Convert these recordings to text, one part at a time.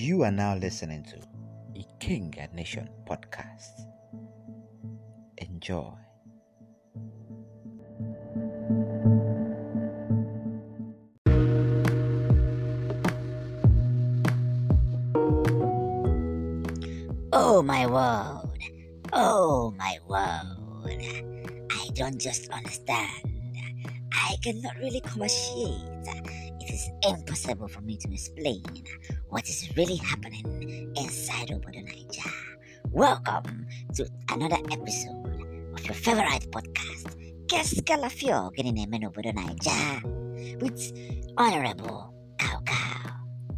You are now listening to the King and Nation podcast. Enjoy. Oh my world, oh my world. I don't just understand. I cannot really commerciate it is impossible for me to explain what is really happening inside Obodo Naija. Welcome to another episode of your favorite podcast, Keskalafio Gininemen Obodo Naija with Honorable Cow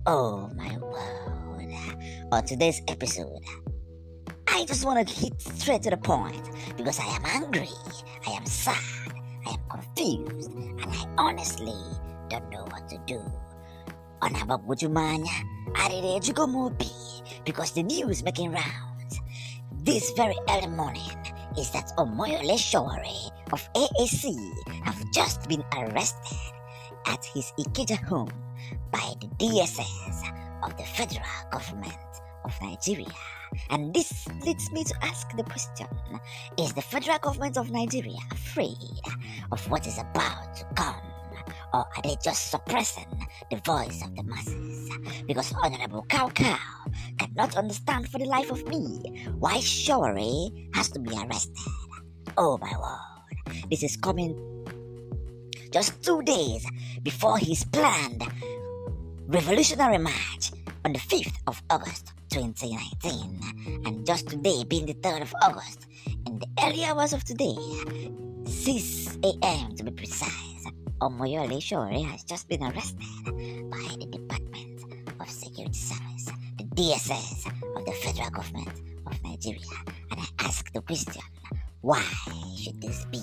Oh my word. On today's episode, I just want to hit straight to the point because I am angry, I am sad, I am confused, and I honestly don't know what to do. On habang Mutumanya, arirejo ko because the news making rounds. This very early morning is that Omoyole shawari of AAC have just been arrested at his ikeja home by the DSS of the federal government of Nigeria. And this leads me to ask the question Is the federal government of Nigeria afraid of what is about to come? or are they just suppressing the voice of the masses? Because Honorable Cow Cow cannot understand for the life of me why Showery has to be arrested. Oh my word, this is coming just two days before his planned revolutionary march on the 5th of August 2019. And just today, being the 3rd of August, in the early hours of today, 6 a.m. to be precise Omoyole Shore has just been arrested by the Department of Security Service, the DSS of the federal government of Nigeria. And I ask the question, why should this be?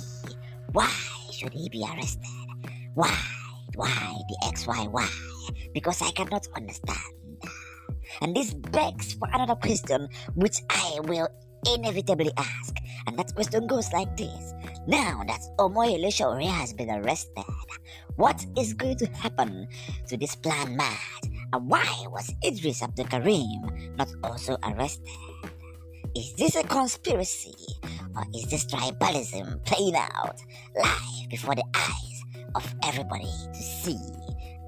Why should he be arrested? Why? Why the XYY? Because I cannot understand. And this begs for another question, which I will inevitably ask. And that question goes like this Now that Omoyele Shore has been arrested, What is going to happen to this plan mad? And why was Idris Abdul Karim not also arrested? Is this a conspiracy or is this tribalism playing out live before the eyes of everybody to see?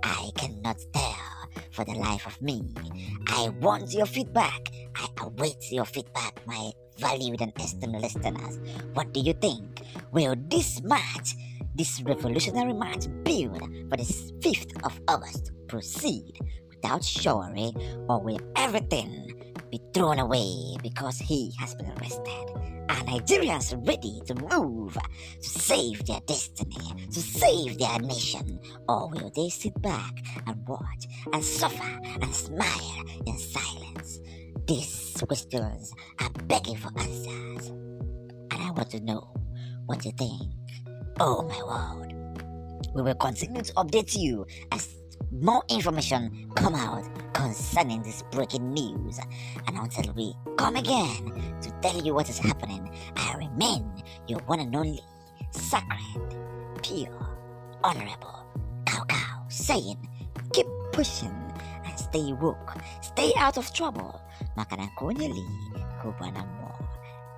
I cannot tell for the life of me. I want your feedback. I await your feedback, my valued and esteemed listeners. What do you think? Will this match This revolutionary march build for the 5th of August proceed without chivalry or will everything be thrown away because he has been arrested. Are Nigerians ready to move to save their destiny, to save their nation? Or will they sit back and watch and suffer and smile in silence? These questions are begging for answers. And I want to know what you think. Oh my word. We will continue to update you as more information come out concerning this breaking news. And until we come again to tell you what is happening, I remain your one and only sacred, pure, honorable Cow Cow saying, keep pushing and stay woke, stay out of trouble. Makanakonye li, kubana mo.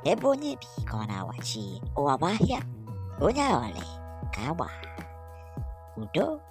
Ebonye bi kona wachi, oawahia. una ole, agua, ụdọ.